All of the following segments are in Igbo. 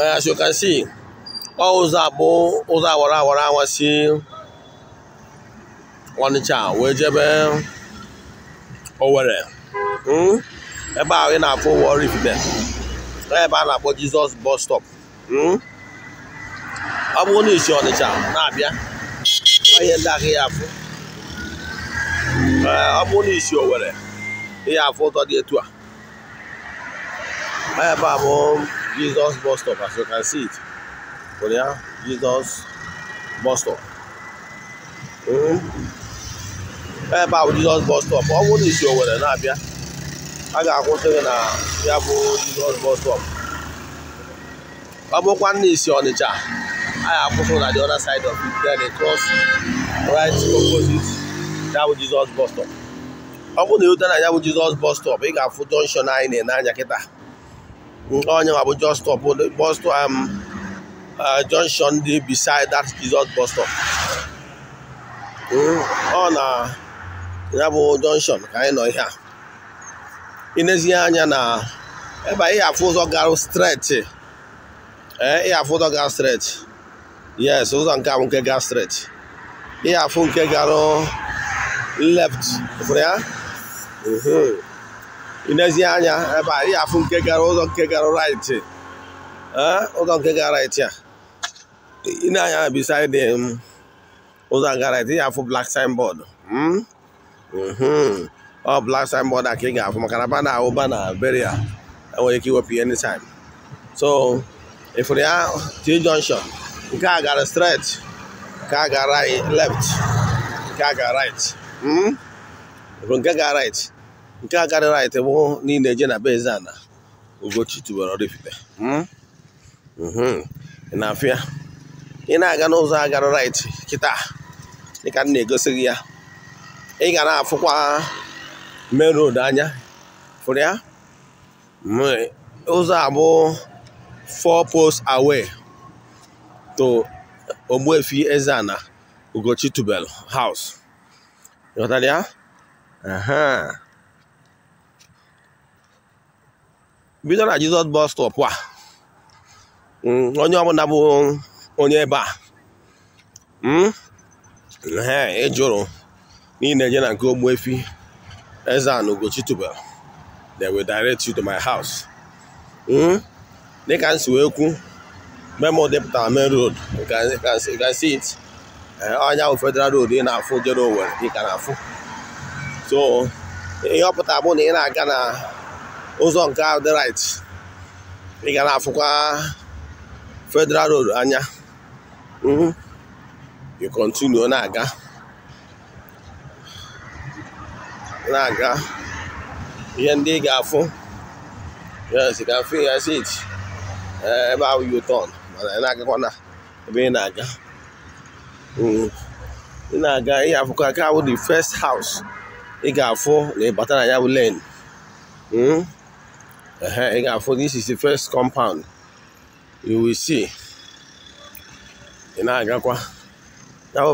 as you can see all ụzọ abụ ụzọ awara awara awa si Ọnịcha wee jebe Owerri hmm? ebe ahụ ị na-afụ Warri Ifite ebe a na-akpọ Jizọs bus stop ọ hmm? bụrụ na eh, isi Ọnịcha na-abịa ihe ndị ahụ ya afụ ọ bụrụ na isi Owerri ihe afụ ụtọ dị etu a ebe a bụ Jesus bus stop as you can see it for there Jesus bus stop ebe a bụ Jesus bus stop ọ bụrụ na isi nwere na-abịa a ga-akwụsị gị na ya bụ Jesus bus stop ọ bụkwa na isi Ọnịcha a ga-akwụsị na the other side of it then cross right opposite ya bụ Jesus bus stop ọ bụrụ na ịrute na ya bụ Jesus bus stop ị ga-afụ jọnshọn anyị na-enye anya kịta nke ọnyanwa bụ bus stop bus stop um, uh, junction dị beside that Jesus bus hmm, ọ na ya bụ jọnshọn ka anyị nọ ihe a inezie anya na ebe anyị afụ ụzọ gara streeti ee eh, ị afụ ụzọ gara streeti yes ụzọ nke a bụ nke gara streeti ị afụ nke gara left ya inezie anya ebe a ị afụ nke gara ụzọ nke gara right ụzọ nke gara right a ịna-anya beside ụzọ gara right ị afụ black signboard hmm? Hmm. ọ black signboard a ka ị ga-afụ maka na bana ahụ bana beria enwere ike iwepụ ihe anytime so ịfụrụ ya T junction nke a gara straight nke a gara left nke a gara right hmm? ịfụrụ nke gara right nke a garị right bụ niile eje na be eze ana Ugochi tubelu Oraifite hmm? mhm. ị na afịa ị na-aga n'ụzọ agara right kịta dịka m na-egosi gị ya ị ga na-afụkwa main road anya fụrụ ya ụzọ a bụ four post away to Ogbuefi Eze-Ana Ugochi Tubel house ghọtara ya bido na Jizọs bus stop a hmm, onye ọbụla bụ onye ebe a hmm, e jụrụ n'ihi na eje na nke Ogbuefi Eze-Ana Ugochi tubelu will direct you to my house hmm, dịka m si wee kwu memo depụtara main road you can see it ọnya eh, federal road ị na-afụ jere Owerri ị ka na-afụ so bụ na ị na-aga na ụzọ nke ahụ dị right ị ga na-afụkwa federal road anya mhm. you continue na-aga na-aga ihe ndị ị ga-afụ yes you can feel yes eh, ebe ahụ you turn mana ị na-agakwa na ebe ị na-aga mhm. ị na-aga ị afụkwa aka bụ the first house ị ga-afụ na ịbata na ya bụ lane mhm. ị ga this is the first compound you will see ị na-agakwa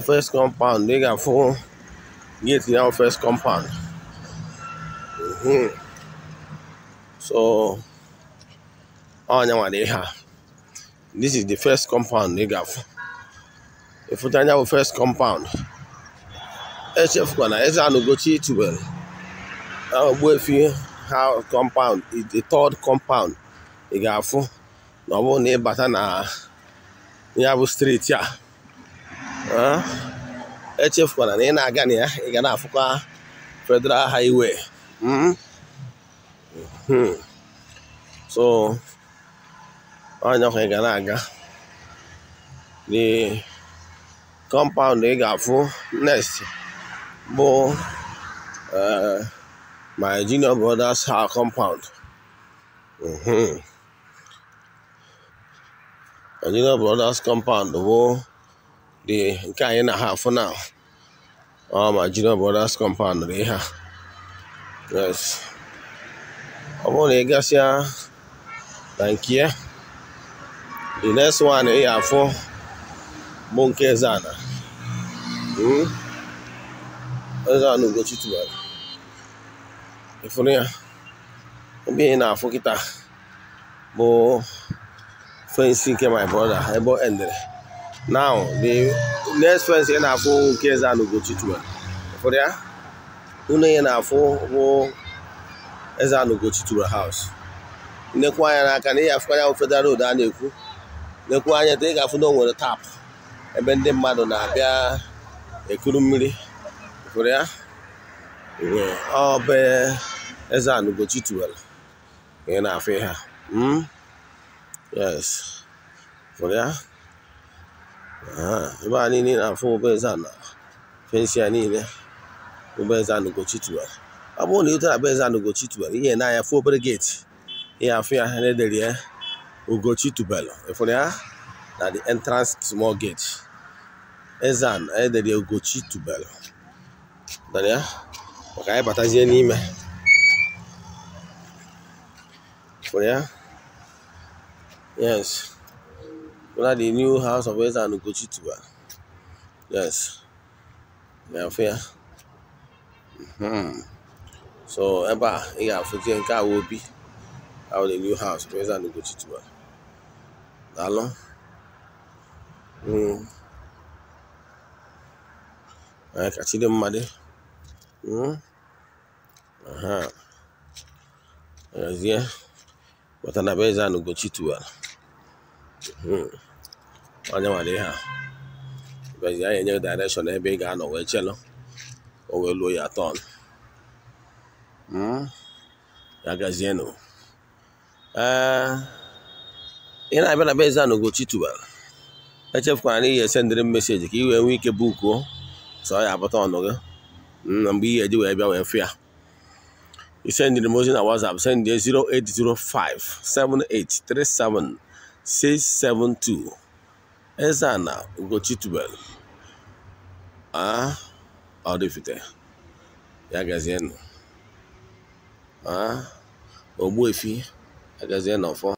first compound ị ga-afụ gate ya first compound mhm. so ọnya nwere ihe this is the first compound ị Ifuta afụ ịfụcha first compound echefukwana na anụgochi itubelu na ogbuefi compound the third compound ị ga-afụ na ọ bụrụ na ịbata na ya bụ steeti a echefukwana na ị na-aga na ya ị ga na-afụkwa federal highway hmm? Hmm. so anyakwa ị ga na-aga the compound ị ga-afụ next bụ eh, my junior brother's house compound. Mm-hmm. My junior brother's compound bụ dị nke anyị na ha afụ na ọ ma junior brother's compound dị ha yes ọ bụrụ na ị gasịa na nke the next one ị afụ bụ nke Ezana hmm? Ezana Ugochi tubelu ịfụrụ ya ebe ị na-afụ kịta bụ fensi nke my brother ebe endere now the next fensi ị na-afụ nke eze a n'Ugochi twelve ịfụrụ ya unu ị na-afụ bụ eze a n'Ugochi twelve house nekwu anya n'aka na ị afụkwa ya federal road a na-ekwu nekwu anya taa ị ga-afụ na o nwere tap ebe ndị mmadụ na-abịa ekuru mmiri ịfụrụ ya ọ bụ eze anugochi tiwara ị na-afụ ha hmm? yes fụrụ ya ah, ebe a niile na-afụ ụbọeze na fensi ya niile ụbọeze anugochi tiwara ọ bụrụ na ị tara abụeze anugochi tiwara ihe na-anya fụ obere geeti ihe afụ ya ha na-edere ya ugochi tubelu ịfụrụ ya na the entrance small gate ezan edere ugochi tubelu maka anyị batazie n'ime for ya yes whether hmm. the new house of Eze and Ugochi tuba yes na Mm hmm so ebe a ị ga-afụzie nke a obi the new house of Eze and Ugochi Tiwa daalụ anyị mm chide mmadụ aha gazie maka na be zanụ Ugochi tiwara onye nwere ihe a hmm. bezi anyị enye direction ebe ị ga-anọ wee chelụ o wee luo ya tọn hmm. ya gazienụ ee ị na-abịa na bezi zanụ Ugochi tiwara echefukwara na ihe esendịrị m meseji ka ị wee nwee ike bukuo sọ ya abụta ọnụ gị hmm, na mgbe ihe ji wee bịa wee fụ ya You send the emotion at WhatsApp. Send the 0805 7837 672. Ezana Ugochitubel. Ah, ọ dịfite. Ya gazienụ. Ah, Ogbuefi agazie n'ọfọ.